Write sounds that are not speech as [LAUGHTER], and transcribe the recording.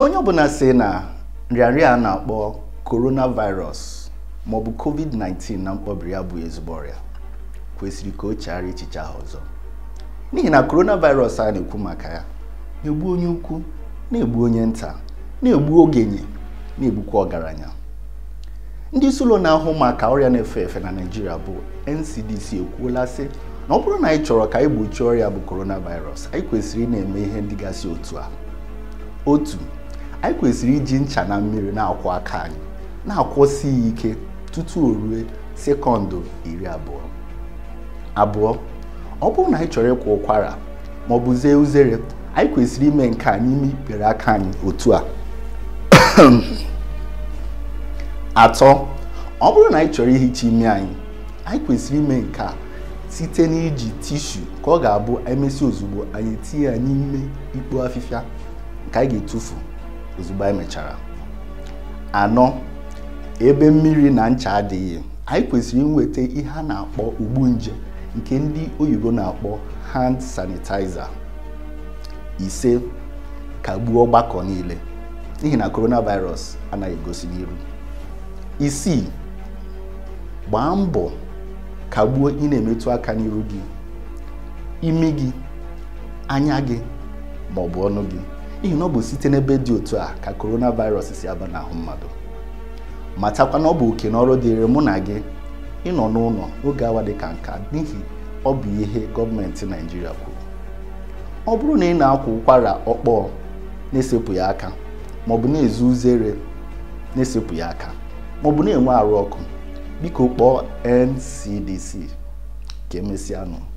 onye ọbụla si na nrịanrịa a na-akpọ coronavirus maọbụ covid-19 na mkpọbiri ya bụ ezigbo ọrịa kwesịrị ka o chegharịa echiche ahụ ọzọ n'ihi na coronavirus a na-ekwu maka ya na-egbu onye ukwu na-egbu onye nta na-egbu ogenye na-egbukwa ọgaranya ndị isi ụlọ na-ahụ maka ọrịa na-efe efe na Naịjirịa bụ NCDC ekwuola sị na ọ bụrụ na anyị chọrọ ka anyị gbochie ọrịa bụ coronavirus anyị kwesịrị ị na-eme ihe ndị gasị otu a otu anyị kwesịrị iji ncha na mmiri na-akwọ aka anyị na-akwọsi ya ike tutu o rue sekọndụ iri abụọ abụọ ọ bụrụ na anyị chọrọ ịkwọ ụkwara ma ọ bụ zee uzere anyị kwesịrị ime nke a n'ime ikpere aka anyị otu a [COUGHS] atọ ọ bụrụ na anyị chọrọ ihicha ime anyị anyị kwesịrị ime nke a site n'iji tishu ka ọ ga-abụ emesi ozugbo anyị tinye ya n'ime ikpo afịfịa nke anyị ga-etufu ozugbo anyị mechara anọ ebe mmiri na ncha adịghị anyị kwesịrị inweta ihe a na-akpọ ugbu nje nke ndị oyibo na-akpọ hand sanitizer ise kagbuo ọgbakọ niile n'ihi na coronavirus anaghị egosi n'iru isii gbaa mbọ kagbuo ị na-emetụ aka n'iru gị imi gị anya gị ma ọ bụ ọnụ gị n'ihi na ọ bụ site n'ebe dị otu a ka coronavirus si aba n'ahụ mmadụ matakwa na ọ bụ oke n'ọrụ ọrụ dịrị mụ na gị ịnọ n'ụlọ oge awa dị ka nka n'ihi ọ bụ ihe gọọmenti naijiria kwuru ọ bụrụ na ị na-akwa ụkwara ọkpọọ na-esepụghị aka maọbụ na-ezu uzere na ya aka maọbụ na-enwe arụ ọkụ biko kpọọ NCDC ka emesịa nụ